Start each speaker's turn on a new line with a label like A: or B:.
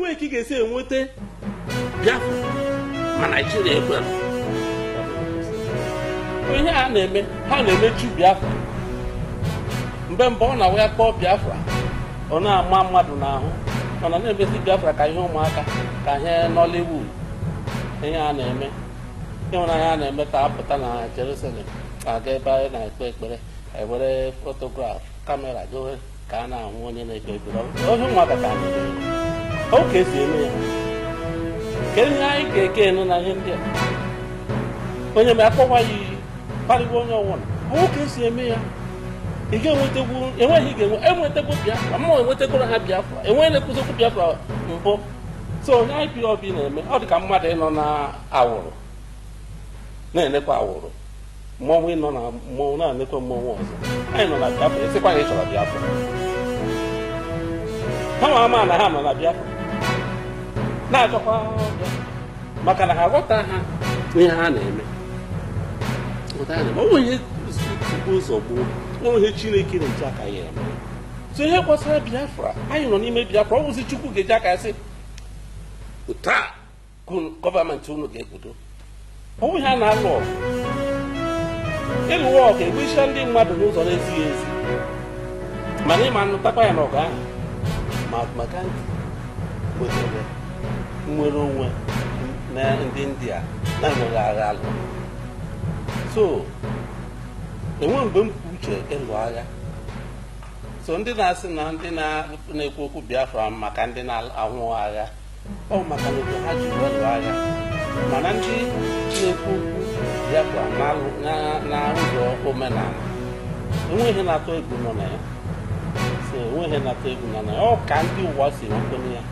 A: enweghị ka ị ga-esi enweta Biafra ma naijiria ekwere ihe a na-eme ha na-emechu Biafra mgbe mgbe ọ na-awụ ya kpọọ Biafra ọ na-ama mmadụ n'ahụ mana na-emesi Biafra ka ihe ụmụaka ka ihe Nollywood ihe a na-eme ịhụnanya a na-eme ka apụta na Jerusalem aga ebe anyị na-ekpe ekpere ewere fotograf kamera gowe ka a na-ahụ onye na-ekpe ekpere ohe ụmụaka ka a na-eme ka esi eme ya kedu ihe anyị ga-eke enu na ihe ndị a onye ma akpọkwa ya iyi kparịwa onye ọwụla ahụ ka esi eme ya ị ga-enwetegwu enweghị ga-enwe enwetegwu biafra mmanwụ enwetegoro ha biafra enweghị na-ekwuzikwu biafra mbụ so onye IPOB na-eme ọ dịka mmadụ ịnọ na awụrụ na-enekwa awụrụ mmọnwụ ịnọ na mmọnwụ na-anekwa mmọnwụ ọzọ anyị nọ na biafra esikwa na ịchọrọ biafra ha ma ama na ha nọ na biafra na-achọkwa maka na ha ghọta ha na-eme onwe ihe tupu ụzọ chineke na aka ya eme so ihe biafra anyị nọ n'ime biafra ọ chukwu ga-eji aka sị taa gọọmenti unu ga onwe a na-alụ ọgụ ịlụ e ọgụ e ndị mmadụ n'ụzọ na-ezighị ezi mana ịma nụtakwa ya n'ọgụ ahụ mahatma nnwere onwe na ndị india na-enweghị agha alụ so enwe mgbe m uche ịlụ agha so ndị na-asị na ndị na-ekwu okwu biafra maka ndị na-ahụ agha ọ maka na ha ji lụ agha mana ndị na-ekwu okwu biafra na ụzọ omenala enweghị na-atụ egwu nọ na ya so enweghị na-atụ egwu nọ na ya ọ ka ndị ụwa si enwekwenye ya